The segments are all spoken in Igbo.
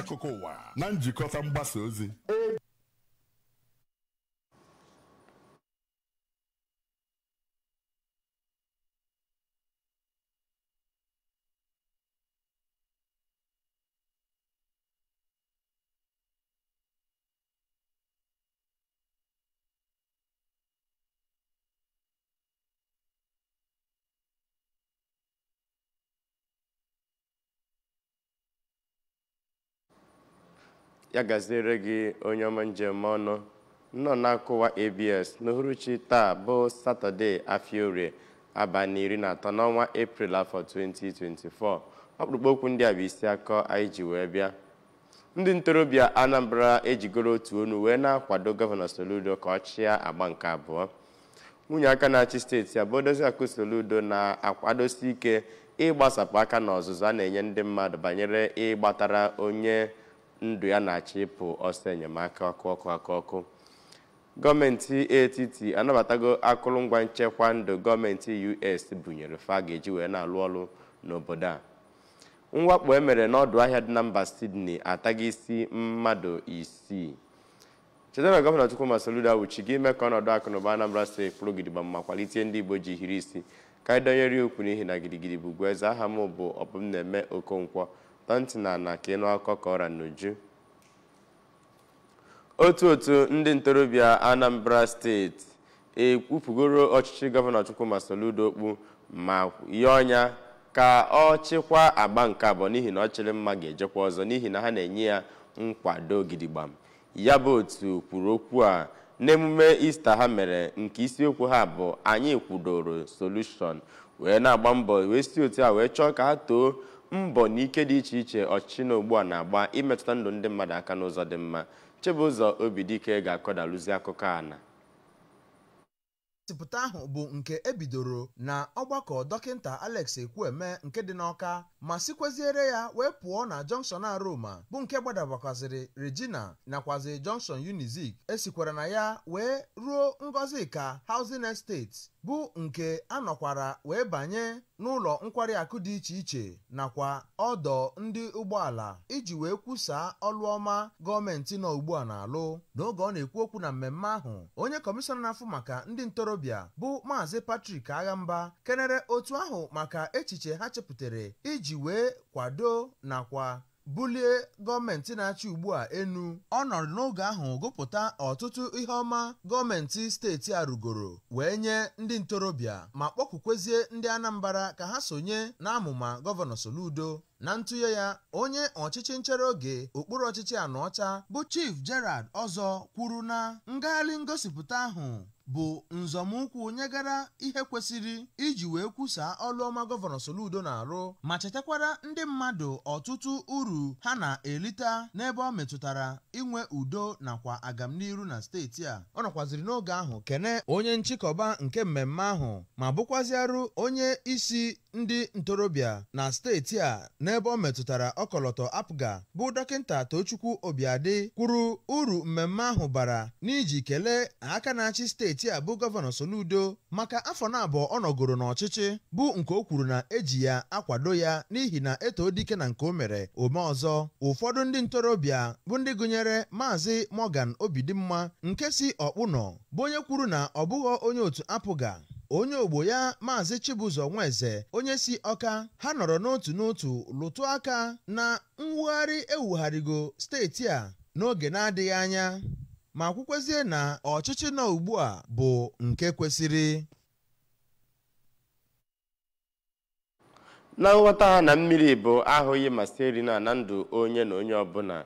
akụkọ ụwa na njikọta mgbasa ozi ya gaziere gị onye ọma njem ọnụ nnọọ na-akụwa abs n'uhuruchi taa bụ satọde afiore orie abalị iri na atọ n'ọnwa eprel afọ 2024 ọkpụkpọ okwu ndị a bụ isi akọ anyị ji wee bịa ndị ntorobịa anambra ejigoro otu onu wee na-akwado gọvanọ soludo ka ọ chịa agba nke abụọ nwunye aka na-achị steeti abụọ akụ soludo na-akwadosi ike ịgbasapụ aka n'ọzụzụ a na-enye ndị mmadụ banyere ịgbatara onye ndụ ya na-achọ ịpụ ọsọ enyemaka ọkụ ọkụ aka ọkụ gọọmenti etiti anabatago akụrụngwa nchekwa ndụ gọọmenti us bunyere fa ga-eji wee na-alụ ọrụ n'obodo a mwakpo emere n'ọdụ ahịa dị na mba Sydney ataghị isi mmadụ isii cheta na gọvanọ Chukwuma Soludo awuchigo ime ka ọnọdụ akụ na ụba Anambra si kpụrụ gidigba ma kwalite ndị Igbo ji hiri isi ka anyị dọnyere ya ukwu n'ihi na gidigidi bụ ugwu eze aha m bụ ọbụm na-eme Okonkwo tọọ na na ana ka ịnụ akụkọ ka ọra n'uju otu otu ndị ntorobịa Anambra steeti ekwupugoro ọchịchị gọvanọ Chukwuma Soludo okpu ma yie ọnya ka ọ chịkwa agba nke abụọ n'ihi na ọ chịrị mma ga-ejekwa ọzọ n'ihi na ha na-enye ya nkwado gidigbam ya bụ otu kwuru okwu a n'emume Ista ha mere nke isiokwu ha bụ anyị kwudoro solushon wee na-agba mbọ wee si otu a wee chọọ ka ha too mbọ na ike dị iche iche ọchịchị na ugbu a na-agba imetụta ndụ ndị mmadụ aka n'ụzọ dị mma Chibụzọ Obidike ga-akọdalụzi akụkọ a na ntipụta ahụ bụ nke ebidoro na ọgbakọ dọkịta Alex Ekwueme nke dị n'Ọka ma sikweziere ya wee pụọ na jọnkson Aroma bụ nke gbadabakwaziri Regina nakwazi Johnson Unizik esikwara na ya wee ruo ka Housing Estate bụ nke a nọkwara wee banye n'ụlọ nkwari akụ dị iche iche nakwa ọdọ ndị ụgbọala iji wee kwusaa ọlụ ọma gọọmenti nọ ugbu a na-alụ n'oge ọ na-ekwu okwu na mmemme ahụ onye kọmishọna na-afụ maka ndị ntorobịa bụ maazị Patrick Aghamba kenere otu ahụ maka echiche ha chepụtara iji wee kwado nakwa bulie gọọmenti na-achị ugbu a enu ọ nọrọ n'oge ahụ gụpụta ọtụtụ ihe ọma gọọmenti steeti a wee nye ndị ntorobịa ma kpọkwukwezie ndị Anambra ka ha sonye n'amụma gọvanọ Soludo na ntụnye ya onye ọchịchị nchere oge okpuru ọchịchị ọcha bụ Chief Gerald Ọzọ kwuru na ngagharị ngosipụta ahụ bụ nzọmụkwụ nyegara ihe kwesịrị iji wee kwusaa ọlụọma gọvanọ Soludo na-arụ ma chetakwara ndị mmadụ ọtụtụ uru ha na elite n'ebe ọ metụtara inwe udo nakwa agamniru na steeti a ọ nọkwaziri n'oge ahụ kene onye nchịkọba nke mmemme ahụ ma bụkwazịarụ onye isi ndị ntorobịa na steeti a n'ebe ọ metụtara ọkọlọtọ apga bụ dọkịta Tochukwu Obiadị kwuru uru mmemme ahụ bara n'iji kelee aka na-achị steeti a bụ gọvanọ Soludo maka afọ na abụọ ọ nọgoro n'ọchịchị bụ nke o kwuru na eji ya akwado ya n'ihi na eto dike na nke o mere ome ọzọ ụfọdụ ndị ntorobịa bụ ndị gụnyere maazị Morgan Obidimma nke si ọkpụnọ bụ onye kwuru na ọ bụghị onye otu apụga onye ogbo ya maazị Chibụzọ Nweze onye si Ọka ha nọrọ n'otu n'otu lụtụ aka na mwugharị ewugharịgo steeti a n'oge na-adịghị anya ma kwukwezie na ọchịchị nọ ugbu a bụ nke kwesịrị na nghọta ha na mmiri bụ ahụghị ma serina na ndụ onye na onye ọbụla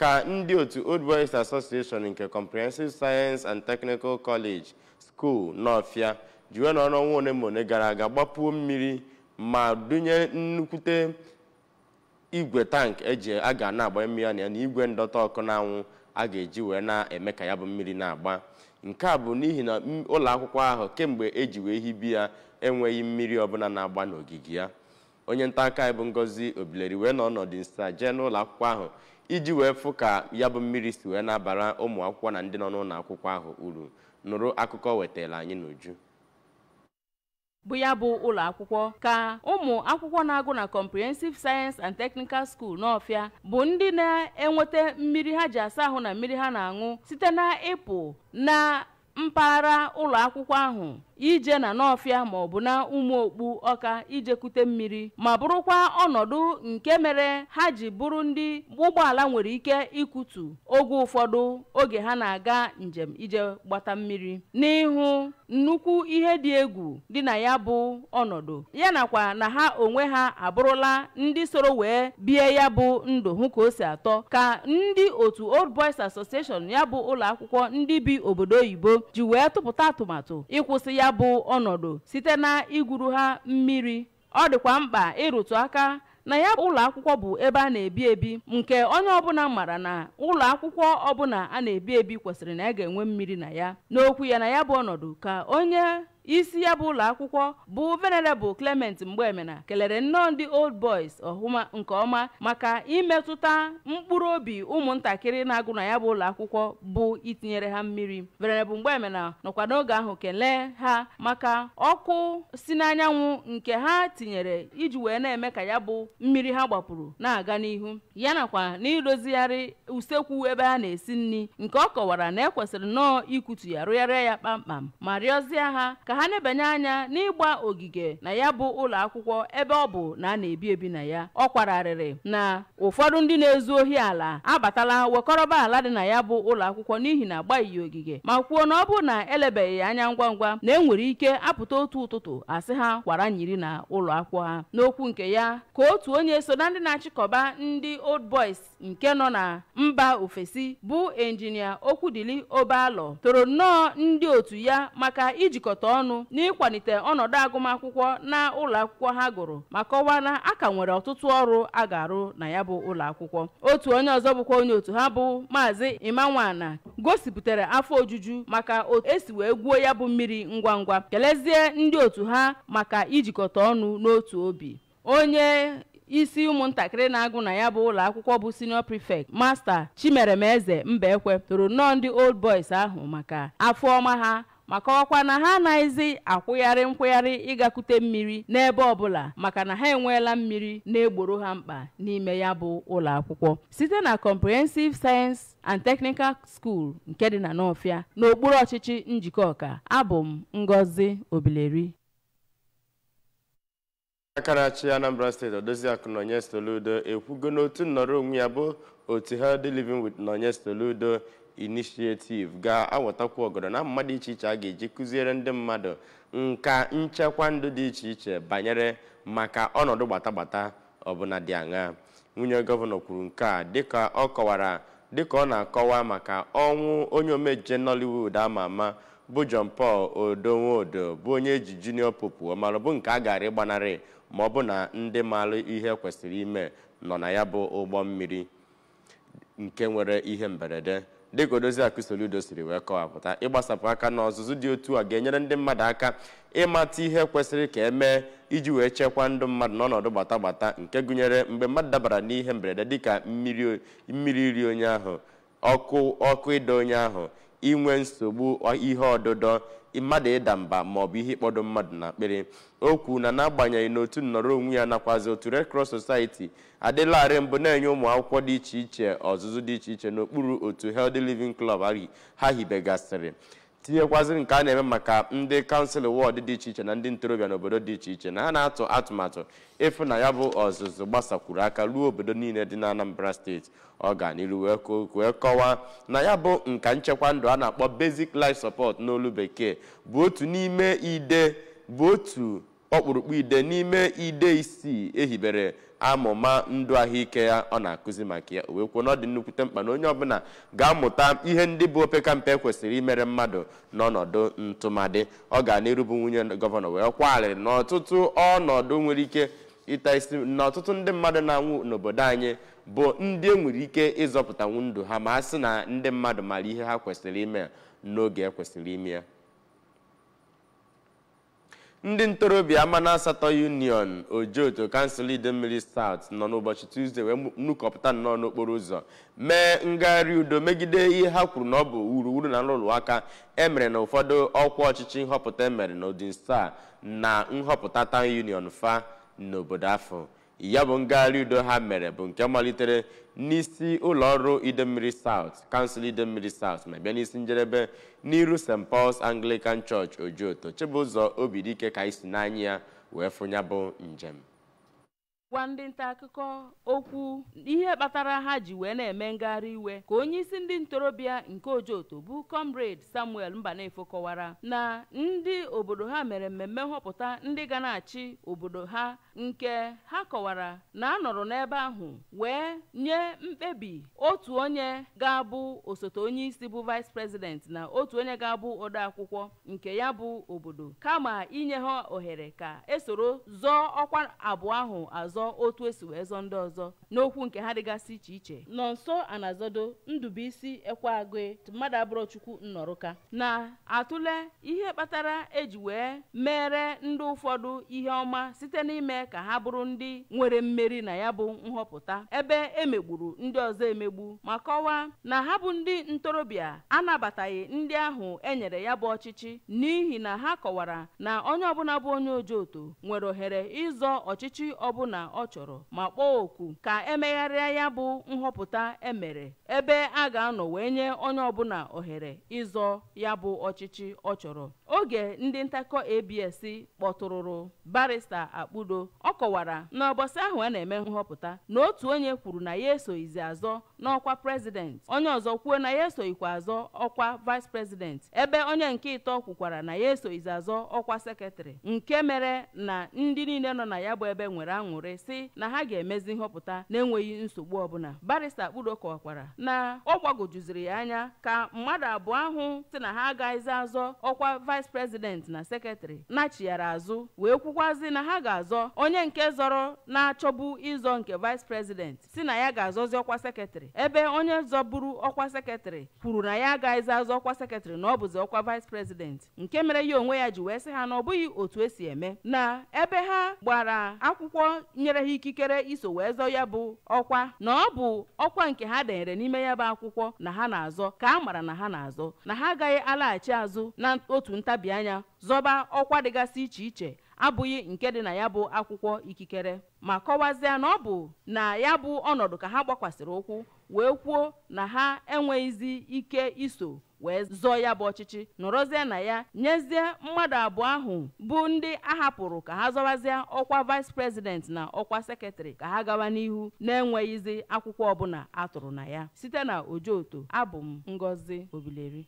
ka ndị otu Old Boys Association nke Comprehensive Science and Technical College School n'Ọfịa jiwe na ọnụ ọnwa one ma one gara aga gbapuo mmiri ma dunye nnukwute igwe tank eji aga na-agba mmiri na ya na igwe ndọta ọkụ na anwụ a ga-eji wee na-eme ka ya bụ mmiri na-agba nke a bụ n'ihi na ụlọ akwụkwọ ahụ kemgbe eji wee hibi ya enweghị mmiri ọbụla na-agba n'ogige ya onye nta aka bụ Ngozi Obileri wee n'ọnọdụ nsa jee n'ụlọ akwụkwọ ahụ iji wee fụ ka ya bụ mmiri si wee na-abara ụmụ akwụkwọ na ndị nọ n'ụlọ akwụkwọ ahụ uru nụrụ akụkọ wetara anyị n'uju bụ ya bụ ụlọ akwụkwọ ka ụmụ akwụkwọ na-agụ na comprehensive science and technical school n'ọfịa bụ ndị na-enweta mmiri ha ji asa ahụ na mmiri ha na-aṅụ site na ịpụ na mpaghara ụlọ akwụkwọ ahụ ije na n'ọfịa ma ọ bụ na ụmụ okpu ọka ijekute mmiri ma bụrụkwa ọnọdụ nke mere ha ji bụrụ ndị ụgbọala nwere ike ịkụtu oge ụfọdụ oge ha na-aga njem ije gbata mmiri n'ihu nnukwu ihe dị egwu dị na ya bụ ọnọdụ ya nakwa na ha onwe ha abụrụla ndị soro wee bie ya bụ ndụ hụ ka o si atọ ka ndị otu Old Boys Association ya bụ ụlọ akwụkwọ ndị bi obodo oyibo ji wee tụpụta atụmatụ ịkwụsị ya ya bụ ọnọdụ site na igwuru ha mmiri ọ dịkwa mkpa ịrụtụ aka na ya ụlọ akwụkwọ bụ ebe a na-ebi ebi nke onye ọbụla mara na ụlọ akwụkwọ ọbụla a na-ebi ebi kwesịrị na ya ga-enwe mmiri na ya n'okwu ya na ya bụ ọnọdụ ka onye isi ya bụ ụlọ akwụkwọ bụ venerable clement mgbemena kelere nnọọ ndị old boys ọhụma nke ọma maka imetụta mkpụrụ obi ụmụntakịrị na-agụ na ya bụ ụlọakwụkwọ bụ itinyere ha mmiri venerable mgbemena nọkwa n'oge ahụ kelee ha maka ọkụ si n'anyanwụ nke ha tinyere iji wee na-eme ka ya bụ mmiri ha gbapụrụ na-aga n'ihu ya nakwa n'idozigharị usekwu ebe a na-esi nri nke ọ kọwara na ekwesịrị nnọọ ikwutu ya rụgharịa ya kpamkpam ma rịọzie ha ka ha na-ebanye anya n'ịgba ogige na ya bụ ụlọ akwụkwọ ebe ọ bụ na a na-ebi ebi na ya ọ kwararịrị na ụfọdụ ndị na-ezu ohi ala abatala wekọrọba ala dị na ya bụ ụlọ akwụkwọ n'ihi na agbaghị ogige ma kwuo na ọ bụ na elebeghị anya ngwa ngwa na enwere ike apụta otu ụtụtụ asị ha kwara nyiri na ụlọ akwụkwọ ha n'okwu nke ya ka otu onye so na ndị na-achịkọba ndị old boys nke nọ na mba ofesi bụ injinia okwudili obealọ toro nnọọ ndị otu ya maka ijikọta ọnụ ọnụ n'ịkwalite ọnọdụ agụmakwụkwọ na ụlọakwụkwọ ha gụrụ ma kọwaa na a ka nwere ọtụtụ ọrụ a ga-arụ na ya bụ ụlọ akwụkwọ otu onye ọzọ bụkwa onye otu ha bụ maazị imanwana gosipụtara afọ ojuju maka otu esi wee gwuo ya bụ mmiri ngwa ngwa kelezie ndị otu ha maka ijikọta ọnụ n'otu obi onye isi ụmụntakịrị na-agụ na ya bụ ụlọ akwụkwọ bụ senior prefect master chimeremeze mbaekwe toro nnọọ ndị old boys ahụ maka afọ ọma ha ma kọwakwa na ha anaghịzi akwụgharị nkwụgharị ịgakute mmiri n'ebe ọbụla maka na ha enweela mmiri na-egboro ha mkpa n'ime ya bụ ụlọ akwụkwọ site na comprehensive science and technical school nke dị na n'ọfịa n'okpuru ọchịchị njikọ ọka abụ m ngozi obileri akarachi anambra steeti odoziakụ nọnye stoludo ekwugo n'otu nnọrọ onwe ya bụ otu healthy living with nọnye stoludo initiative ga-awetakwu ọgọdọ na mmadụ iche iche a ga-eji kụziere ndị mmadụ nka nchekwa ndụ dị iche iche banyere maka ọnọdụ gbatagbata ọbụla dị aṅa nwunye gọvanọ kwuru nke a dịka ọ kọwara dịka ọ na-akọwa maka ọnwụ onye omeje Nollywood ama ama bụ John Paul Odonwodo bụ onye eji Junior Pope ọmalụ bụ nke a gara ịgbanarị ma ọ bụ na ndị maara ihe kwesịrị ime nọ na ya bụ ụgbọ mmiri nke nwere ihe mberede dịka odozi Soludo siri wee kọwapụta ịgbasapụ aka n'ọzụzụ dị otu a ga-enyere ndị mmadụ aka ịmata ihe kwesịrị ka emee iji wee chekwaa ndụ mmadụ n'ọnọdụ gbata gbata nke gụnyere mgbe mmadụ dabara n'ihe mberede dịka mmiri iri onye ahụ ọkụ ọkụ ịda onye ahụ inwe nsogbu ihe ọdụdọ mmadụ ịda mba maọbụ ihe ịkpọdo mmadụ na akpịrị o kwuru na n'agbanyeghị na otu nnọrọ onwe ya nakwazi otu Red Cross Society adịlarị mbụ na-enye ụmụ akwụkwọ dị iche iche ọzụzụ dị iche iche n'okpuru otu Healthy Living Club ha hibegasịrị tinyekwaziri nke a na-eme maka ndị kansụl wọdụ dị iche iche na ndị ntorobịa n'obodo dị iche iche na ha na-atụ atụmatụ ịfụ na ya bụ ọzụzụ gbasakwuru aka ruo obodo niile dị na Anambra steeti ọ ga n'iru wee kọwaa na ya bụ nka nchekwa ndụ a na-akpọ bezik life sọpọt n'olu bekee bụ otu n'ime ide bụ otu ọkpụrụkpụ ide n'ime ide isii ehibere amụma ndụ ahụike ya ọ na-akụzi maka ya wee kwuo na ọ dị nnukwute mkpa na onye ọbụla ga-amụta ihe ndị bụ opekampe kwesịrị imere mmadụ n'ọnọdụ ntụmadị ọ ga n'irubu nwunye gọvanọ wee kwagharịrị n'ọtụtụ ọnọdụ nwere ike ịta isi n'ọtụtụ ndị mmadụ na-anwụ n'obodo anyị bụ ndị enwere ike ịzọpụtanwu ndụ ha ma a sị na ndị mmadụ mara ihe ha kwesịrị ime n'oge ekwesịrị ime ya ndị ntorobịa Amana Asatọ Union Ojoto kansụl Idemmili saut nọ n'ụbọchị Tuzdee wee nnukọpụta nnọọ n'okporo ụzọ mee ngagharị udo megide ihe ha kwuru na ọ bụ wuruwuru na nrụrụ aka emere na ụfọdụ ọkwa ọchịchị nhọpụta emere na Odinsta na nhọpụta Town Union fa n'obodo afọ ya bụ ngagharị udo ha mere bụ nke malitere n'isi ụlọọrụ idemmiri South kansụl idemmiri South ma bịa n'isi njedebe n'iru St. Paul's Anglican Church Ojuoto Chibụzọ Obidike ka anyị si n'anya ya wee fụnya bụ njem gwa ndị nta akụkọ okwu ihe kpatara ha ji wee na-eme ngagharị iwe ka onye isi ndị ntorobịa nke ojoto bụ comrade samuel mbanefo kọwara na ndị obodo ha mere mmemme nhọpụta ndị ga na-achị obodo ha nke ha kọwara na anọrọ n'ebe ahụ wee nye mkpebi otu onye ga-abụ osote onye isi bụ vice president na otu onye ga-abụ ode akwụkwọ nke ya bụ obodo kama inye ha ohere ka esoro zọọ ọkwa abụọ ahụ azụ ọzọ otu esi wee zọ ndị ọzọ n'okwu nke ha dịgasị iche iche nọ nso anazodo ndụbụisi ekweagụ mmadụ abụrụ chukwu nnọrụka na-atụle ihe kpatara eji wee mere ndị ụfọdụ ihe ọma site n'ime ka ha bụrụ ndị nwere mmeri na ya bụ nhọpụta ebe emegburu ndị ọzọ emegbu ma kọwaa na ha bụ ndị ntorobịa anabataghị ndị ahụ enyere ya bụ ọchịchị n'ihi na ha kọwara na onye ọbụla bụ onye oji nwere ohere ịzọ ọchịchị ọbụla ọ chọrọ ma kpọọ oku ka emegharịa ya bụ nhọpụta emere ebe a ga-anọ wee nye onye ọbụla ohere ịzọ ya bụ ọchịchị ọ chọrọ oge ndị ntakọ abs kpọtụrụrụ barista akpụdo ọ kọwara na ụbọchị ahụ a na-eme nhọpụta na otu onye kwuru na ya esoghizi azọ n'ọkwa prezident onye ọzọ kwuo na ya esoghikwa azọ ọkwa vice prezident ebe onye nke ịtọ kwukwara na ya esoghizi azọ ọkwa sekretrị nke mere na ndị niile nọ na ya bụ ebe nwere aṅụrị kwere sị na ha ga-emezi nhọpụta na-enweghị nsogbu ọbụla barista kpudo kọwakwara na ọ gbagojuziri ya anya ka mmadụ abụọ ahụ sị na ha agaghịzi azọ ọkwa vice president na sekretarị nachigara azụ wee kwukwazi na ha ga-azọ onye nke zọrọ na-achọbu ịzọ nke vice prezident si na ya ga-azọzi ọkwa sekretarị ebe onye zọburu ọkwa sekretarị kwuru na ya agaghịzi azọ ọkwa sekretarị na ọ bụzi ọkwa vice president nke mere ya onwe ya ji wee sị ha na ọ bụghị otu esi eme na ebe ha gbara akwụkwọ nyere ha ikikere iso wee zọọ ya bụ ọkwa na ọ bụ ọkwa nke ha denyere n'ime ya bụ akwụkwọ na ha na-azọ ka a mara na ha na-azọ na ha agaghị alaghachi azụ na otu ntabianya zọba ọkwa dịgasị iche iche abụghị nke dị na ya bụ akwụkwọ ikikere ma kọwazịa na ọ bụ na ya bụ ọnọdụ ka ha gbakwasịrị ụkwụ wee kwuo na ha enweghịzi ike iso wee zọọ ya bụ ọchịchị nọrọzie na ya nyezie mmadụ abụọ ahụ bụ ndị ahapụrụ ka ha zọwazie ọkwa vice president na ọkwa sekretari ka ha gawa n'ihu na-enweghịzi akwụkwọ ọbụla atụrụ na ya site na ojoto abụ m Ngozi Obileri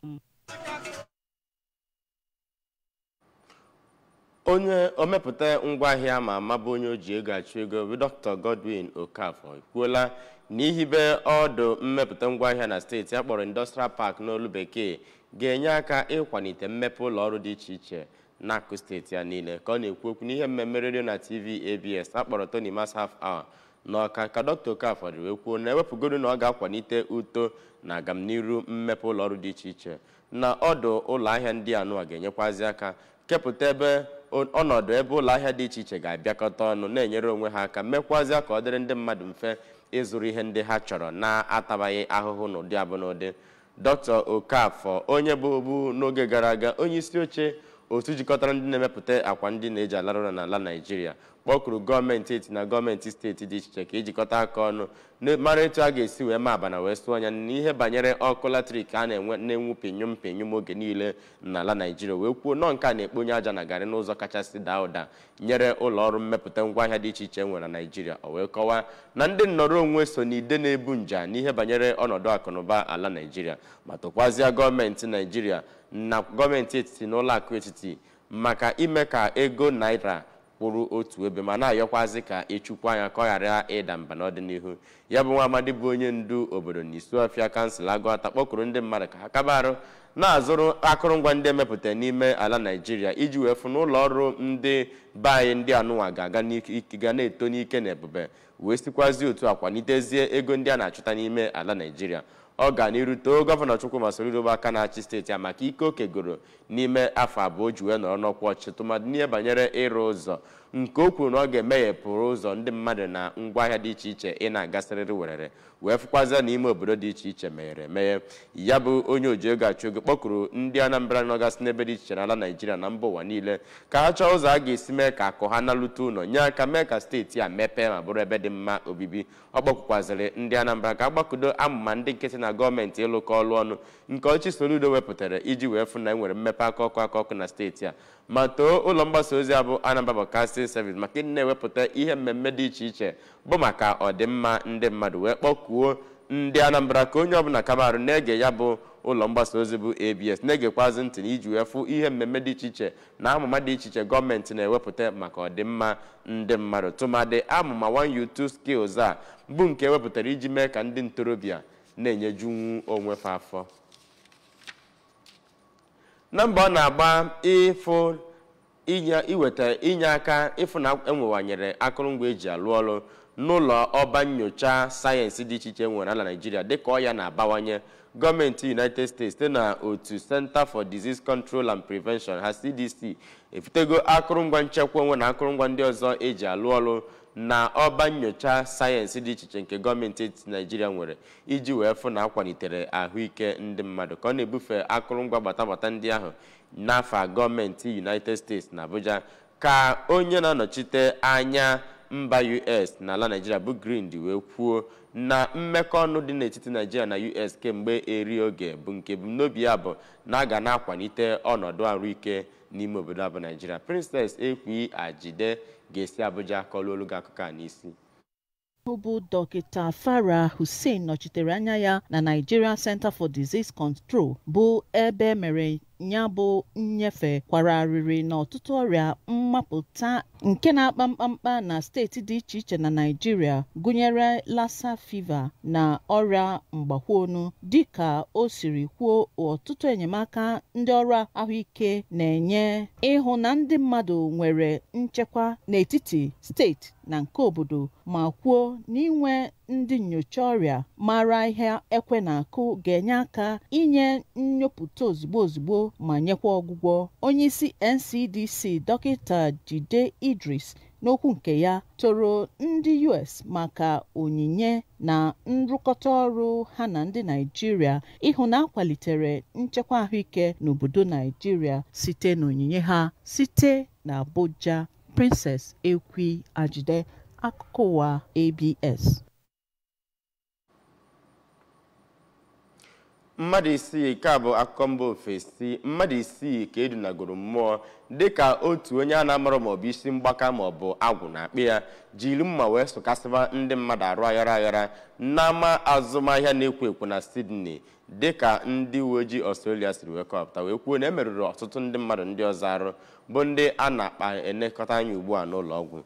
onye omepụta ngwaahịa ma ama bụ onye o ji ego achụ ego bụ Dr. Godwin Okafor ekwuola n'ihibe ọdụ mmepụta ngwaahịa na steeti a kpọrọ industrial park n'olu bekee ga-enye aka ịkwanite mmepe ụlọ ọrụ dị iche iche Akụ steeti ya niile ka ọ na-ekwu okwu n'ihe mmemme redio na tv abs akpọrọ Tony mas Half Hour n'ọka ka Dr. Okafor wee kwuo na ewepụgodu na ọ ga-akwalite uto na agamniru mmepe ụlọ ọrụ dị iche iche na ọdụ ụlọ ahịa ndị anụwa ga enyekwazi aka kepụta ebe ọnọdụ ebe ụlọ ahịa dị iche iche ga-abịakọta ọnụ na-enyere onwe ha aka mekwazịa ka ọ dịrị ndị mmadụ mfe ịzụrụ ihe ndị ha chọrọ na-atabaghị ahụhụ n'ụdị abụ n'ụdị dr okafọ onye bụbu n'oge gara aga onye isi oche otu jikọtara ndị na-emepụta akwa ndị na-eji alara ụra n'ala naijiria kpọkuru gọọmenti eti na gọọmenti steeti dị iche iche ka ijikọta e aka ọnụ mara etu a ga-esi wee ma abana wee sụọ anya n'ihe banyere ọkụ latrik a na-enwe na-enwu pinyum pinyum oge niile n'ala naijiria wee kwuo nọ nke a na-ekponye aja na garị n'ụzọ kachasị daa ụda nyere ụlọ ọrụ mmepụta ngwaahịa dị iche iche e nwere na naijiria o wee kọwaa na ndị nnọrọ onwe so n'ide na-ebu nja n'ihe banyere ọnọdụ akụnụba ala naijiria ma tụkwazịa gọọmenti naijiria na gọọmenti etiti na ụlọ akụ etiti maka ime ka ego naira kpụrụ otu ebe ma na-ayọkwazị ka ịchụkwu anya ka ọ ghara ịda mba n'ọdịnihu ya bụ nwa amadi bụ onye ndu obodo na isuofia kansụl agụata kpọkụrụ ndị mmadụ ka ha kaba arụ na-azụrụ akụrụngwa ndị emepụta n'ime ala naijiria iji wee fụ na ndị be anyị ndị anụnwa ga-aga ga na-eto n'ike na ebube wee sikwazi otu a kwalitezie ego ndị a na-achụta n'ime ala naijiria ọganiru too gọvanọ Chukwuma Soludo aka na-achị steeti a maka ike o kegoro n'ime afọ abụọ ji wee nọrọ n'ọkwa ọchịchị tụmadị n'ihe banyere ịrụ ụzọ nke o kwuru na ọ ga-emeghepụrụ ụzọ ndị mmadụ na ngwaahịa dị iche iche ị na-agasịrịrị werere wee fụkwazịa n'ime obodo dị iche iche meghere emeghe ya bụ onye oji ego achụ ego kpọkuru ndị Anambra nọgasị n'ebe dị iche n'ala Naijiria na mba ụwa niile ka ha chọọ ụzọ a ga-esi mee ka akụ ha nalute ụlọ nye aka mee ka steeti a mepee ma bụrụ ebe dị mma obibi ọ kpọkụkwazịrị ndị Anambra ka agbakọdo amụma ndị nkịtị na gọọmenti ịlụkọ ọlụ ọnụ nke ọchịchị Soludo wepụtara iji wee fụ na enwere mmepe akụkụ akụkụ na steeti a ma too ụlọ mgbasa ozi a bụ Anambra Broadcasting Service maka ị na-ewepụta ihe mmemme dị iche iche bụ maka ọdịmma ndị mmadụ wee kpọkuo ndị Anambra ka onye ọbụla kabarụ na-ege ya bụ ụlọ mgbasa ozi bụ ABS na egekwazị ntị na iji wee fụ ihe mmemme dị iche iche na amụma dị iche iche gọọmenti na-ewepụta maka ọdịmma ndị mmadụ tụmadị amụma 1U2 skills a bụ nke ewepụtara iji mee ka ndị ntorobịa na-enyejunwu onwe fa afọ na mba ọ na-agba ịfụ iweta inye aka ịfụ na enwewanyere akụrụngwa eji alụ ọrụ n'ụlọ ọba nyocha sayensị dị iche iche e nwere ala Naịjirịa dịka ọ ya na-abawanye gọọmenti United States site na otu Center for Disease Control and Prevention ha CDC efutego akụrụngwa nchekwa onwe na akụrụngwa ndị ọzọ eji alụ ọrụ na ọba nyocha sayensị dị iche iche nke gọọmenti etiti naijiria nwere iji wee fụ na akwalitere ahụike ndị mmadụ ka ọ na-ebufe akụrụngwa gbatagbata ndị ahụ n'afọ gọọmenti united states na abuja ka onye na-anọchite anya mba us na ala naijiria bụ green d wee kwuo na mmekọ ọnụ dị n'etiti naijiria na us kemgbe eri oge bụ nke ebumnobi ya bụ na a ga na-akwalite ọnọdụ ahụike n'ime obodo abụ naijiria princess ekwi ajide ga-esi Abuja kọlụ olu gị akụkọ a n'isi ụbụ dọkịta Farah Hussein nọchitere anya ya na Nigeria Center for Disease Control bụ ebe e mere ya bụ nnyefe kwararịrị ọtụtụ ọrịa mmapụta nke na-akpa mkpamkpa na steeti dị iche iche na Naịjirịa gụnyere lassa fiva na ọrịa mgbakwunu dịka o siri kwuo ọtụtụ enyemaka ndị ọrụ ahụike na-enye ịhụ na ndị mmadụ nwere nchekwa n'etiti steeti na nke obodo ma kwuo n'inwe ndị nyocha ọrịa mara ihe ekwe na-akụ ga-enye aka inye nnyopụta ozugbo ozugbo ma nyekwa ọgwụgwọ onye isi NCDC dọkịta Jide Idris n'okwu nke ya toro ndị US maka onyinye na nrụkọta ọrụ ha na ndị Naijiria ịhụ na akwalitere nchekwa ahụike n'obodo Naijiria site na onyinye ha site na Abuja Princess Ekwi Ajide akụkọ ụwa ABS mmadụ isii nke bụ akụkọ mba ofesi mmadụ isii ka edunagoro mmụọ dịka otu onye a na-amarụ maọbụ isi mgbaka maọbụ agwụ na akpị ya jiri mma wee sụkasịba ndị mmadụ arụ ayọrọ ayọrọ n'ama azụmahịa na-ekwo ekwo na Sydney dịka ndị uwe ojii Australia siri wee kọpụta wee kwuo na e merụrụ ọtụtụ ndị mmadụ ndị ọzọ arụ bụ ndị a na-akpa elekọta anya ugbu a n'ụlọ ọgwụ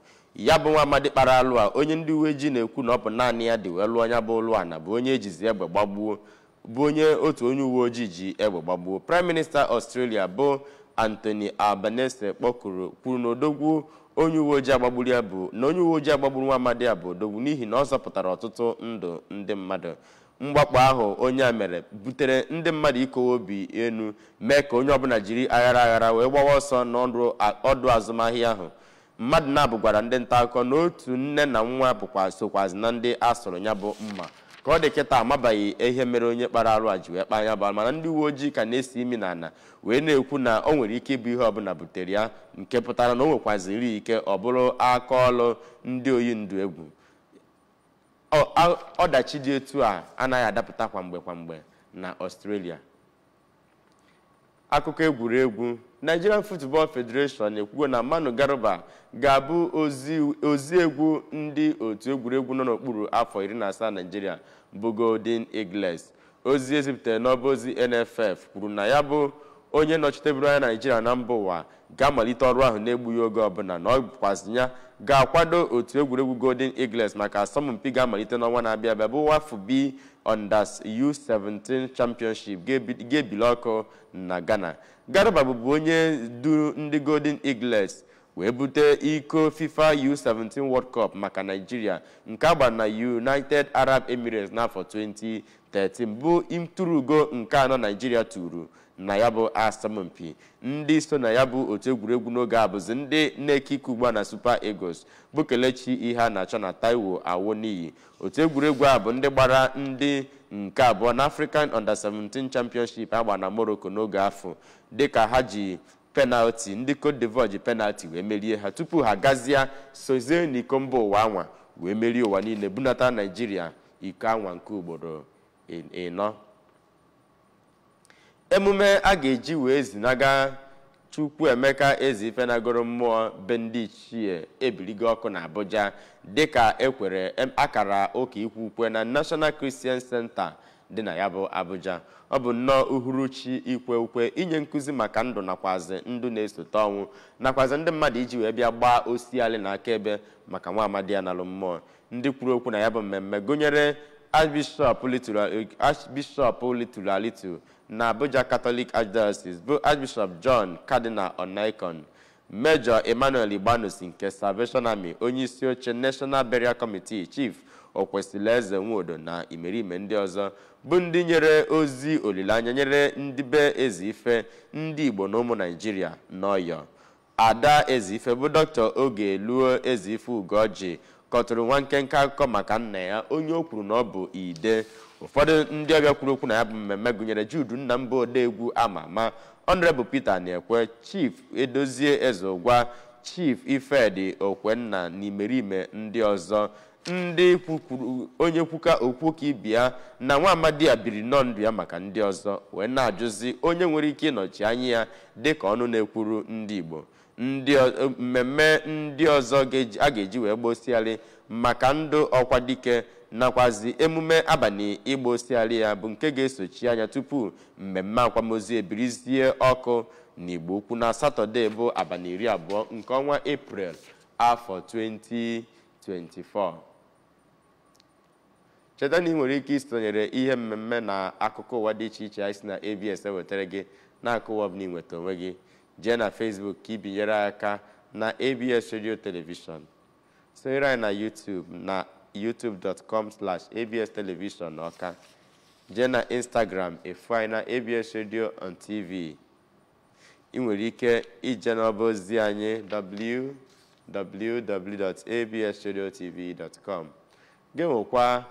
ya bụ nwa amadi kpara alụ a onye ndị uwe ojii na-ekwu na ọ bụ naanị ya dị wee lụọ nya bụ ụlụ a na bụ onye ejizi egbe gbagbuo bụ onye otu onye uwe ojii ji egbe gbagbuo prime minista australia bụ anthony albanese kpọkụrụ kwuru na odogwu onye uwe ojii agbagburu ya bụ na onye uwe ojii agbagburu nwa amadi ya bụ odogwu n'ihi na ọ zọpụtara ọtụtụ ndụ ndị mmadụ mgbakpọ ahụ onye a mere butere ndị mmadụ ikowe obi elu mee ka onye ọbụla jiri aghara aghara wee gbawa ọsọ n'ọdụ azụmahịa ahụ mmadụ na-abụgwara ndị nta akụkọ na otu nne na nwa bụkwa sokwazi na ndị asụrụ ya bụ mma ka ọ dị kịta amabaghị ihe mere onye kpara arụ a ji wee bụ mana ndị uwe ojii ka na-esi imi na ana wee na-ekwu na o nwere ike ịbụ ihe ọbụla butere ya nke pụtara na o nwekwaziri ike ọ bụrụ aka ọlụ ndị oyi ndụ egwu ọdachi dị etu a anaghị adapụta kwamgbe kwamgbe na Australia akụkọ egwuregwu Nigerian Football Federation ekwugo na Manu Garba ga-abụ ozi egwu ndị otu egwuregwu nọ n'okpuru afọ iri na asaa Nigeria bụ Golden Eagles ozi ezipụtara n'ọba ozi NFF kwuru na ya bụ onye nọchiteburu anya naijiria na mba ụwa ga-amalite ọrụ ahụ na-egbughị oge ọbụla na ọgwụkwazi ya ga-akwado otu egwuregwu golden eagles maka asọmpi ga-amalite n'ọnwa na-abịa abịa bụ wafu b Unders U17 Championship ga-ebili ọkụ na Ghana Garba bụbu onye duru ndị golden eagles wee bute iko FIFA U17 World Cup maka Nigeria nke agba na United Arab Emirates n'afọ 2013 bụ ntụrụugo nke anọ naijiria tụrụ na ya bụ asọmpi ndị so na ya bụ otu egwuregwu n'oge a bụzi ndị na-ekike ugbu a na super eagles bụ kelechi ihe a na-achọ na taiwo n'iyi otu egwuregwu a bụ ndị gbara ndị nke abụọ na african under 17 championship agba na morocco n'oge afọ dịka ha ji penalti ndị cote d'ivoire ji penalti wee merie ha tupu ha gazie sozie n'iko mba ụwa anwa wee merie ụwa niile bunata naijiria iko anwa nke ugboro ịnọ emume a ga-eji wee zinaga Chukwuemeka Eze-Ife nagoro mmụọ be ndị ichie ebirigo ọkụ na Abuja dịka ekwere akara ụka ikwu ukwe na National Christian Center dị na ya bụ Abuja ọ bụ nnọọ uhuruchi ikwe ukwe inye nkuzi maka ndụ nakwazi ndụ na-esote ọnwụ nakwazi ndị mmadụ iji wee bịa gbaa osialị na akaebe maka nwa amadi ya ndị kwuru okwu na ya bụ mmemme gụnyere Archbishop Olitulalitu na Abuja Catholic Archdiocese bụ Archbishop John Cardinal Onaikon Major Emmanuel Igbanusi nke Salvation Army onyeisi oche National Burial Committee Chief Okwesilieze Nwodo na imerime ndị ọzọ bụ ndị nyere ozi olileanya nyere ndị be ife ndị Igbo na ụmụ Naịjirịa n'Ọyọ Ada ife bụ Dr. Ogeluo Ezeife Ugoji kọtụrụ nwa nkenke akụkọ maka nna ya onye o kwuru na ọ bụ ide ụfọdụ ndị ọbịa kwuru okwu na ya bụ mmemme gụnyere Jude ode egwu ama ama bụ Peter na-ekwe chif Edozie gwa Chief Ifedi Okwenna na imerime ndị ọzọ ndị onye kwuka okwu ka ibia na nwa amadi ya biri nnọọ ndụ ya maka ndị ọzọ wee na-ajụzi onye nwere ike ịnọchi anya ya dịka ọnụ na-ekwuru ndị Igbo Eh, mmemme ndị ọzọ a ga-eji wee gbosịarị maka ndụ ọkwa dike nakwazi emume abalị ịgbosịarị ya bụ nke ga-esochi anya tupu mmemme akwamozu ebirizie ọkụ n'Igbo Ukwu na Satọde bụ abalị iri abụọ nke ọnwa April afọ 2024 cheta na ị nwere ike isonyere ihe mmemme na akụkọ ụwa dị iche iche anyị si na ABS wetara gị na-akụwa ọbụla inweta onwe gị jee na Facebook ka ibinyere aka na ABS Radio Television sonyere anyị na YouTube na youtube.com/abstelevision ọka jee na Instagram efu anyị na ABS Radio on TV ị nwere ike ije n'ọba ozi anyị www.absradiotv.com gị nwekwa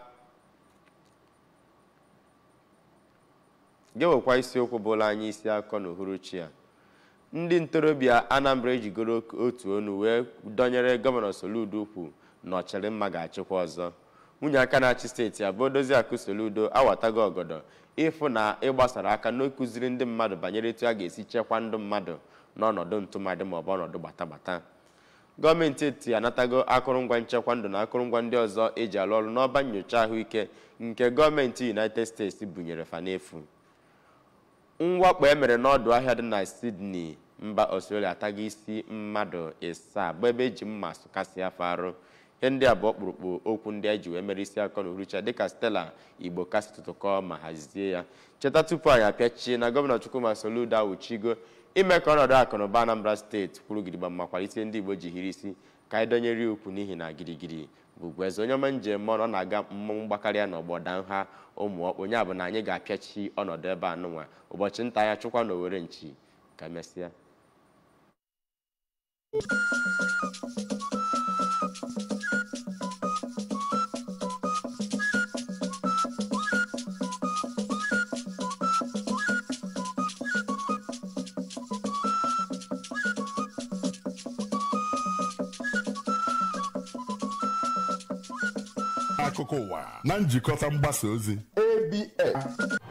gị nwekwa isiokwu bụla anyị isi akọ n'uhuruchi a ndị ntorobịa Anambra ejigoro otu onu wee dọnyere gọvanọ Soludo ukwu na mma ga-achịkwa ọzọ nwunye aka na-achị steeti abụọ akụ Soludo awatago ọgọdọ ịfụ na ịgbasara aka n'okụziri ndị mmadụ banyere etu a ga-esi chekwa ndụ mmadụ n'ọnọdụ ntụmadị maọbụ ọnọdụ gbatagbata gọọmenti eti anatago akụrụngwa nchekwa ndụ na akụrụngwa ndị ọzọ eji alụ ọrụ n'ọba nyocha ahụike nke gọọmenti United States bunyere fa mwakpo emere n'ọdụ ahịa dị na Sydney mba Australia ataghị isi mmadụ ịsaa bụ ebe eji mma sụkasị afọ arụ ihe ndị a bụ okwu ndị e ji wee mere isi akọ na urucha dịka Stella Igbo kasị tụtụkọ ma hazie ya cheta tupu anyị apịachie na gọvanọ Chukwuma soluda wuchigo ime ka ọnọdụ akụ na ụba Anambra steeti kwuru gidigba ma kwalite ndị Igbo ji hiri isi ka anyị dọnyere ukwu n'ihi na girigiri eze onye ọma njem ọnụ na-aga mmọnwụ mgbakarịa ọgbọda nha ụmụọkpụ onye a bụ na anyị ga-apịachi ọnọdụ ebe a nụnwa ụbọchị nta ya chụkwa na owere nchi ka mesịa ụwa na njikọta mgbasa ozi ABS